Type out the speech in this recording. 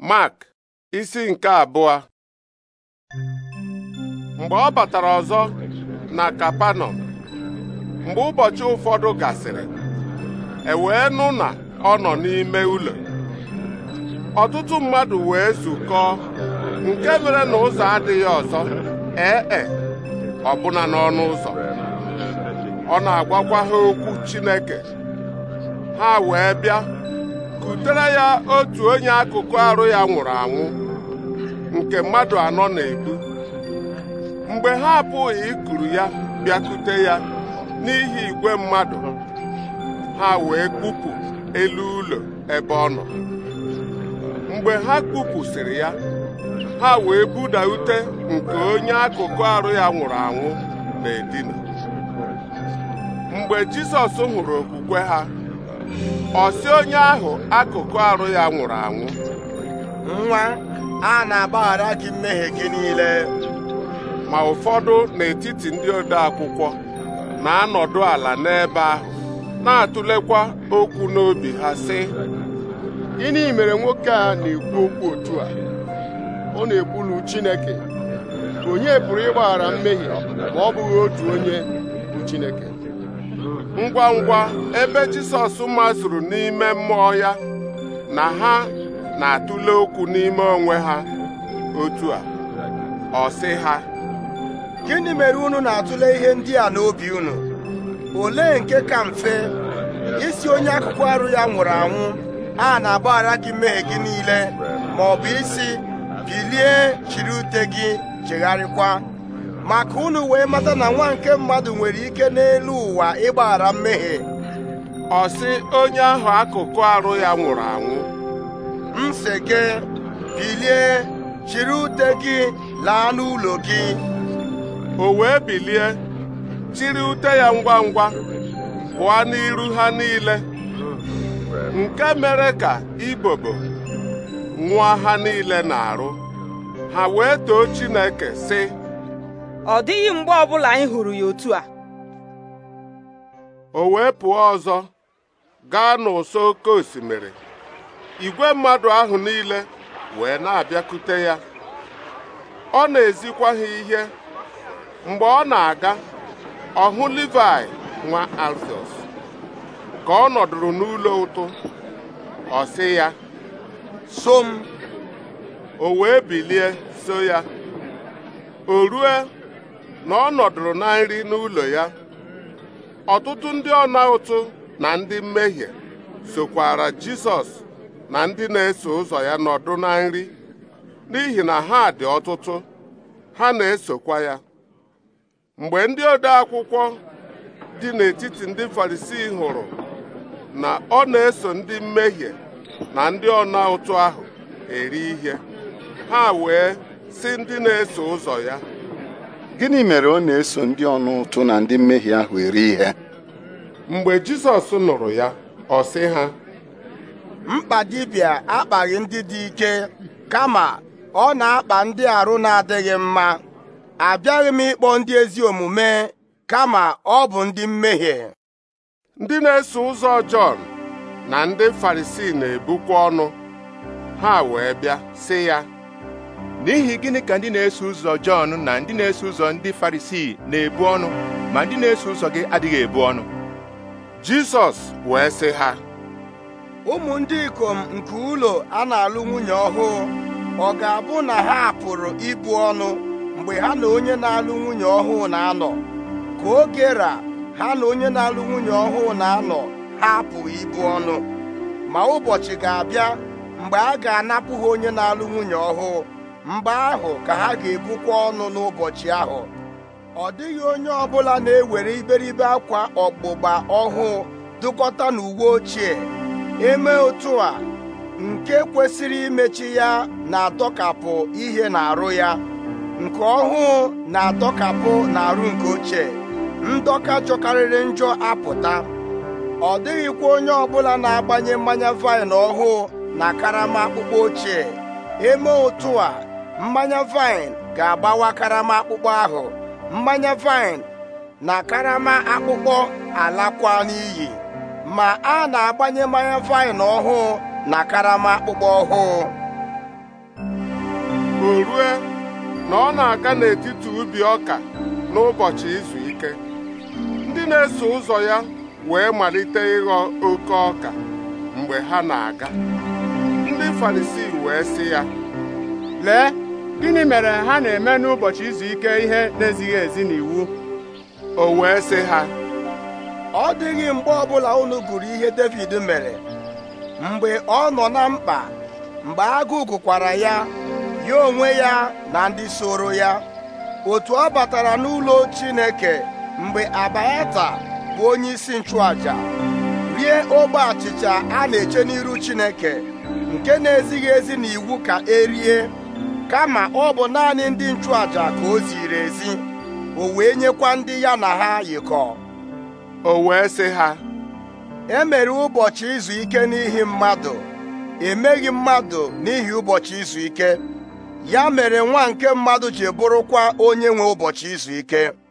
Mark isi nke abụọ mgbe ọ batara ọzọ na Kapanọm mgbe ụbọchị ụfọdụ gasịrị e wee nụ na ọ nọ n'ime ụlọ ọtụtụ mmadụ wee zukọọ nke mere na ụzọ adịghị ọzọ ee ọbụna n'ọnụ ụzọ ọ na-agwakwa ha okwu Chineke ha wee bịa butere ya otu onye akụkụ arụ ya nwụrụ anwụ nke mmadụ anọ na egbu mgbe ha abụghị ikuru ya bịakute ya n'ihi igwe mmadụ ha wee kpupụ elu ụlọ ebe ọ nọ mgbe ha kpupụsịrị ya ha wee buda ute nke onye akụkụ arụ ya nwụrụ anwụ na-edina mgbe Jisọs hụrụ okwukwe ha ọsị onye ahụ akụkụ arụ ya nwụrụ anwụ nwa a na-agbaghara gị mmehie gị niile ma ụfọdụ n'etiti ndị ode akwụkwọ na-anọdụ ala n'ebe ahụ na-atụlekwa okwu n'obi ha sị gịnị mere nwoke a na-ekwu okwu otu a ọ na-ekwulu Chineke onye pụrụ ịgbaghara mmehie ma ọ bụghị otu onye bụ Chineke ngwa ngwa ebe Jisọs mazụrụ n'ime mmụọ ya na ha na-atụle okwu n'ime onwe ha otu a ọ sị ha gịnị mere unu na-atụle ihe ndị a n'obi unu olee nke ka mfe isi onye akụkụ arụ ya nwụrụ anwụ a na-agbaghara gị mee gị niile ma ọ bụ isi bilie chiri ute gị chegharịkwa maka unu wee mata na nwa nke mmadụ nwere ike n'elu ụwa ịgbaghara mmehie ọ sị onye ahụ akụkụ arụ ya nwụrụ anwụ m si gị bilie chiri ute gị laa n'ụlọ gị o wee bilie chiri ute ya ngwa ngwa pụọ n'iru ha niile nke mere ka ibobo nwa ha niile na-arụ ha wee too Chineke sị ọ dịghị mgbe ọbụla anyị hụrụ ya otu a o wee pụọ ọzọ gaa n'ụsọ oke osimiri igwe mmadụ ahụ niile wee na-abịakute ya ọ na-ezikwa ha ihe mgbe ọ na-aga ọhụ Livai nwa Alfios ka ọ nọdụrụ n'ụlọ ụtụ ọ sị ya so m o wee bilie so ya o rue na ọ nọdụrụ na nri n'ụlọ ya ọtụtụ ndị ọna ụtụ na ndị mmehie sokwara Jisọs na ndị na-eso ụzọ ya nọdụ na nri n'ihi na ha dị ọtụtụ ha na-esokwa ya mgbe ndị ode akwụkwọ dị n'etiti ndị Farisii hụrụ na ọ na-eso ndị mmehie na ndị ọna ụtụ ahụ eri ihe ha wee sị ndị na-eso ụzọ ya gịnị mere ọ na-eso ndị ọnụ ụtụ na ndị mmehie ahụ eri ihe mgbe Jizọs nụrụ ya ọ sị ha mkpa dibịa akpaghị ndị dị ike kama ọ na-akpa ndị arụ na-adịghị mma abịaghị m ịkpọ ndị ezi omume kama ọ bụ ndị mmehie ndị na-eso ụzọ Jọn na ndị Farisii na-ebukwa ọnụ ha wee bịa sị ya n'ihi gịnị ka ndị na-eso ụzọ Jọn na ndị na-eso ụzọ ndị Farisii na-ebu ọnụ ma ndị na-eso ụzọ gị adịghị ebu ọnụ Jizọs wee sị ha ụmụ ndị ikom nke ụlọ a na-alụ nwunye ọhụụ ọ ga-abụ na ha pụrụ ibu ọnụ mgbe ha na onye na-alụ nwunye ọhụụ na-anọ ka oge ra ha na onye na-alụ nwunye ọhụụ na-anọ ha apụghị ibu ọnụ ma ụbọchị ga-abịa mgbe a ga-anapụ ha onye na-alụ nwunye ọhụụ mgbe ahụ ka ha ga-ebukwa ọnụ n'ụbọchị ahụ ọ dịghị onye ọbụla na-ewere iberibe akwa ọgbụgba ọhụụ dụkọta n'uwe ochie eme otu a nke kwesịrị imechi ya na-adọkapụ ihe na-arụ ya nke ọhụụ na-adọkapụ n'arụ nke ochie ndọka jọkarịrị njọ apụta ọ dịghịkwa onye ọbụla na-agbanye mmanya vaịn ọhụụ na karama akpụkpọ ochie eme otu a mmanya vaịn ga-agbawa karama akpụkpọ ahụ mmanya vaịn na karama akpụkpọ alakwa n'iyi ma a na-agbanye mmanya vaịn ọhụụ na karama akpụkpọ ọhụụ o rue na ọ na-aga n'etiti ubi ọka n'ụbọchị izu ike ndị na-eso ụzọ ya wee malite ịghọ oke ọka mgbe ha na-aga ndị Farisii wee sị ya lee gịnị mere ha na-eme n'ụbọchị izu ike ihe na-ezighị ezi n'iwu o wee sị ha ọ dịghị mgbe ọbụla unu gụrụ ihe David mere mgbe ọ nọ na mkpa mgbe agụụ gụkwara ya ya onwe ya na ndị soro ya otu ọ batara n'ụlọ Chineke mgbe Abayata bụ onye isi nchụaja rie ogbe achịcha a na-eche n'iru Chineke nke na-ezighị ezi n'iwu ka erie kama ọ bụ naanị ndị nchụàjà ka o ziri ezi o wee nyekwa ndị ya na ha yikọ o wee sị ha e mere ụbọchị izu ike n'ihi mmadụ emeghị mmadụ n'ihi ụbọchị izu ike ya mere nwa nke mmadụ ji bụrụkwa onye nwe ụbọchị izu ike